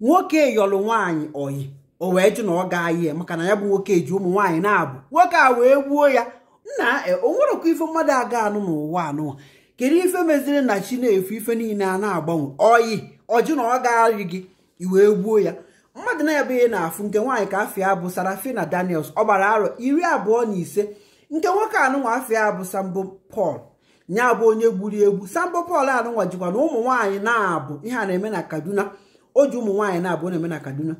nwoke yọlụ nwaanyị oyi o wee jụ na ọ ga ya maka na ya bụ nwoke ji ụmụ nwaanyị na-abụ nwoke a wee gbuo ya nna e, o nwerekwa ife mmadụ aga anụ n'ụwa anụ kedu ife meziri na chi na-efu ife niile a na-agbanwe oyi ọjụ na ọ ga gị iwee gbuo ya mmadụ na-ebe ihe na-afụ nke nwaanyị ka afia bụ Sarafina Daniels ọ gbara arọ iri abụọ na ise nke nwoke anụnwa afia abụ Sambo Paul nya bụ onye gburu egbu Sambo Paul anụnwa jikwa na ụmụ nwaanyị na-abụ ihe a na-eme na Kaduna o ji ụmụ nwaanyị na-abụ na-eme na kaduna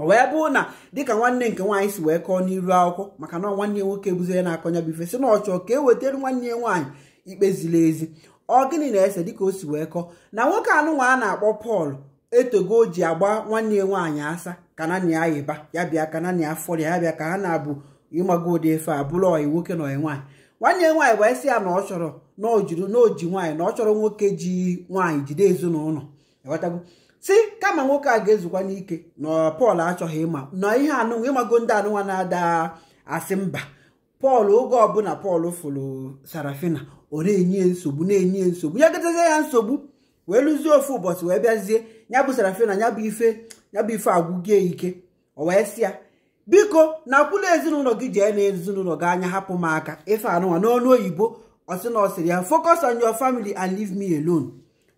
o wee bụrụ na dịka nwanne nke nwaanyị si wee kọọ n'iru akwụkwọ maka na nwanne ya nwoke bụzie na-akọnya bụ ife si na ọchọ ka e wetara nwanne ya nwaanyị ikpe ziri ezi ọ gịnị na-ese dịka o si wee kọọ na nwoke nwa a na-akpọ pọl etogo ji agba nwanne ya nwaanyị asa ka na ya yịba ya bịa ka na ya fọrọ ya bịa ka ha na-abụ ịmago ụdị efe a bụrụ ọyị nwoke na ọyị nwaanyị nwanne nwaanyị wee sị ya na ọ chọrọ na o ji nwaanyị na ọ chọrọ nwoke ji nwaanyị jide ezinụlọ ewetago si kama nwoke a ga-ezukwa n'ike na pọl achọghị ịma na ihe anụnwa ịmago ndị anụnwa na-ada asị mba pọl oge ọbụla pọl fụrụ sarafina ọ na-enye nsogbu na-enye nsogbu ya gatazie ya nsogbu wee lụzie ofu ụbọchị wee bịazie ya bụ sarafina ya bụ ife ya bụ ife agwụgie ike ọ wee sị ya biko na akwụla ezinụlọ gị jee na ezinụlọ gị anya hapụ m aka ife anụnwa n'ọnụ oyibo ọsị na ọ sịrị ya focus on your family and leave me alone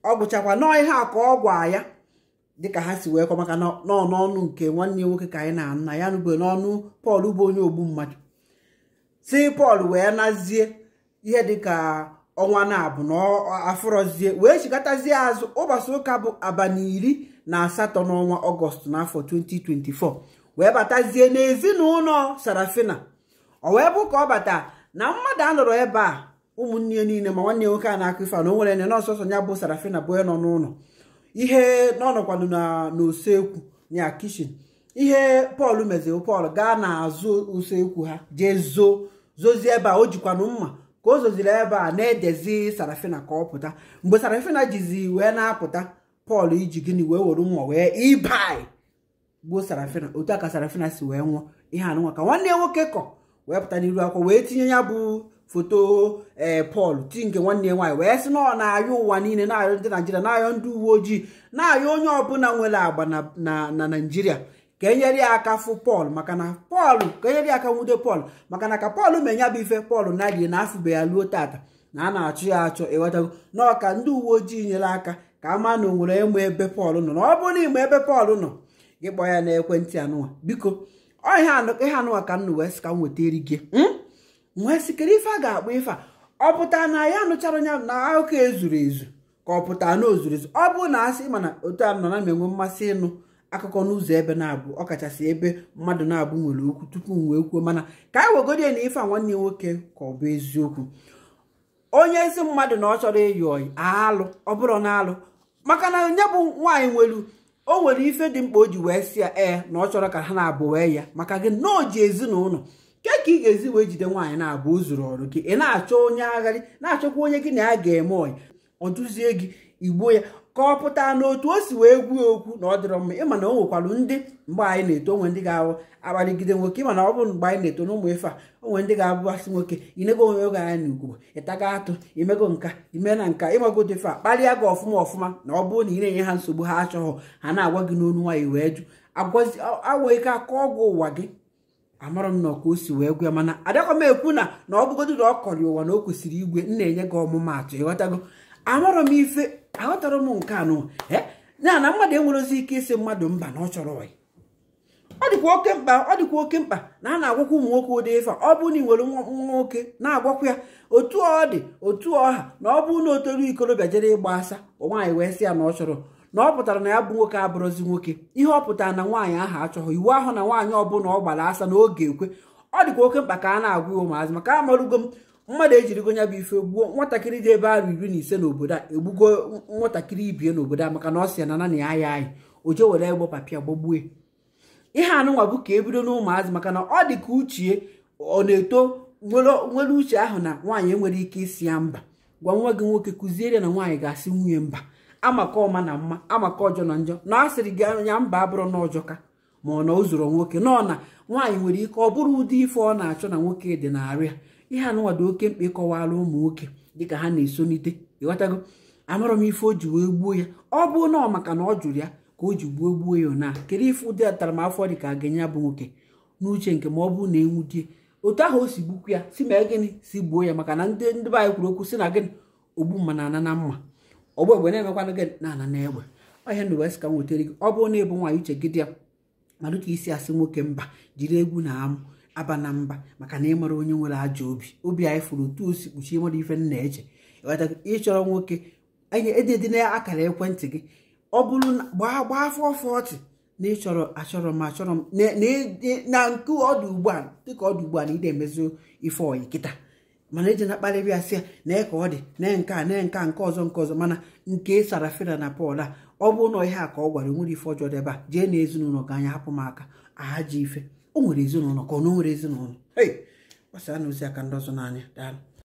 ọ gụchakwa nọọ ihe a ka ọ gwa ya dịka ha si wee kwa maka n'ọnụ nke nwanne ya nwoke ka anyị na-anụ na ya nụbe n'ọnụ pọl bụ onye ogbu mmadụ si pọl wee nazie ihe dịka ọnwa na-abụ na afụrọzie wee chikọtazie azụ ụbọchị ụka bụ abalị iri na asatọ n'ọnwa ọgọst n'afọ 2024 wee batazie n'ezinụlọ sarafina o wee bụ ka ọ bata na mmadụ a ebe a ụmụnne niile ma nwanne ya nwoke a na-akụ ife na o nwere nọ nọọsọsọ ya bụ sarafina bụ onye nọ n'ụlọ ihe n'ọnọkwanụ n'usekwu ya kishin ihe pọl meziri pọl gaa n'azụ usekwu ha jee zoo zozie ebe a o jikwanụ mma ka o zoziri ebe a na-edezi sarafina ka ọ pụta mgbe sarafina jizi wee na-apụta pọl iji gịnị wee were mma wee ibai gbuo sarafina otu a ka sarafina si wee nwụọ ihe anụnwa ka nwanne ya nwoke kọ wee pụta n'iru akwa wee tinye ya bụ foto ee eh, pọl ti nke nwanne ya nwaanyị wee sị na ọ na-ayọ ụwa niile na-ayọ ndị naijiria na-ayọ ndị uwe ojii na-ayọ onye ọbụla nwere agba na naijiria ka enyere ya aka fụ pọl maka na pọl ka enyere ya aka nwude pọl maka na ka pọl ma ya bụ ife pọl na-adịghị na afụbe ya ruo tata na a na-achụ ya achọ ewetago n'ọka ndị uwe ojii nyere aka ka ama na onwere ịmụ ebe pọl nọ na ọ bụrụ na ebe pọl nọ gị kpọọ ya n'ekwentị anụwa biko ọ ihe anụwa ka m wee sị ka m weta eri gị hmm? nwee e sikere ife a ga-akpọ ife a ọ pụta na ya nụchara onye na akụkọ ezuru ezu ka ọ pụta na ozuru ezu ọ bụrụ na asị mana otu a nọ na m enwe mmasị ịnụ akụkọ n'ụzọ ebe na-abụ ọkachasị ebe mmadụ na-abụ nwere okwu tupu m wee kwuo mana ka anyị wegodi ya na ife a nwanne nwoke ka ọ bụ eziokwu onye ezi mmadụ na ọ chọrọ ịyị ọyị alụ ọ bụrụ na alụ maka na onye bụ nwaanyị nwelu o nwere ife dị mkpa o ji wee si ya ee na ọ chọrọ ka ha na-abụ wee ya maka gị na o ji ezinụlọ nke ka ị ga-ezi wee jide nwaanyị na-abụ o zuru ọrụ gị ị na-achọ onye agharị na-achọkwa onye gị na ya ga-eme ọyị ọ dụzie gị igbo ya ka ọ pụta n'otu o si wee gwuo okwu na ọ dịrọ mma ịma na o nwekwara ndị mgbe anyị na-eto onwe ndị ga-ahụ akparịgide nwoke ịma na ọ bụrụ mgbe anyị na-eto n'ụmụ ife a onwe ndị ga-abụbasị nwoke inego onwe oge anyị na ugogbo ịtaga atụ imego nka ime na nka ịmagodo ife a kparịa gị ọfụma ọfụma na ọ bụrụ na ị na-enye ha nsogbu ha achọghị ha na-agwa gị n'onu nwaanyị wee jụ agwa ike aka ọgwụ ụwa gị amarọ m na ọka wee gwe mana adakwa m ekwu na na ọ bụgodu na ọ kọrị ụwa na o kwesịrị igwe m na-enye gị ọmụmatụ ịghọtago amarọ m ife aghọtara m nke anụ eh? ya na mmadụ enwerozi ike ịsị mmadụ mba na ọ chọrọ ọyị ọ dịkwa oke mkpa ọ dịkwa oke mkpa na a na-agwakwa ụmụ nwoke ụdị ife ọ bụrụ na ị nwere nwa nwoke na-agwakwa ya otu ọ dị otu ọha na ọ bụrụ na o toru ikorobịa jere ịgba asa nwaanyị wee sị ya na ọ chọrọ na ọ pụtara na ya bụ nwoke abụrụzi nwoke ihe ọ pụtara na nwaanyị ahụ achọghị iwu ahụ na nwaanyị ọbụla ọ gbara asa n'oge ekwe ọ dịkwa oke mkpa ka a na-agwa ya ụmụazị maka amarụgo m mmadụ ejirigo ya bụ ife gbuo nwatakịrị dị ebe arụ iri na ise n'obodo a egbugo nwatakịrị ibie n'obodo a maka na ọ si ya na nana ya ya anyị o je were egbo papịa gbagbue ihe anụnwa bụ ka ebido n'ụmụazị maka na ọ dị ka uchie ọ na-eto nwere uche ahụ na nwaanyị enwere ike isi ya mba gwa nwa gị nwoke kụziere na nwaanyị ga-asị nwunye mba amaka ọma na mma amaka ọjọọ na njọ na a sịrị gị anya mba abụrụ na ọjọka ka ma ọ na o zoro nwoke nọ na nwaanyị nwere ike ọ bụrụ ụdị ife ọ na-achọ na nwoke dị arịa ihe anụnwado oke mkpa ịkọwara ụmụ nwoke dịka ha na-esonite ịghọtago amarọ m ife o ji wee gbuo ya ọ bụ na ọ maka na ọ jụrụ ya ka o ji gbuo gbuo ya na kedu ife ụdị afọ dị ka ga-enye bụ nwoke n'uche nke ma ọ bụ na enwudie otu ahụ o si gbukwu ya si ma gịnị si gbuo ya maka na ndị ndị be anyị kwuru okwu si na gịnị ogbu na ana na mma ọgbọ egbe na-emekwana gị na ana na egbe ọhịa ndụ wes ka m gị ọ bụrụ na ịbụ nwaanyị uche gị dị ya ma dịka isi asị nwoke mba jiri egwu na amụ aba na mba maka na ịmara onye nwere ajọ obi obi anyị fụrụ otu osi kpuchie mmadụ ife nna eche ịchọrọ nwoke edede na akara ekwentị gị ọ bụrụ gbaa gbaa afọ fọtị na ịchọrọ achọrọ m achọrọ m na nke ọdụ ugbu a dịka ọdụ ugbu a na ị na-emezu ife ọyị kịta mana eji na-akparịrị ya ya nee ka ọ dị nee nke a nee nke a nke ọzọ nke ọzọ mana nke e sara sarafina na pọl a ọ bụ na ihe a ka ọ gwara nwere ife ọjọọ dị a jee na ezinụlọ ga anya hapụ m aka aha ji ife o nwere ezinụlọ ka ọ na o nwere ezinụlọ ei gbasara na ozi aka ndị ọzọ n'anya daalụ